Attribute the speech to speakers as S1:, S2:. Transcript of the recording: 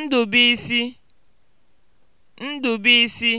S1: Ndubuisi (Ndụbụisi)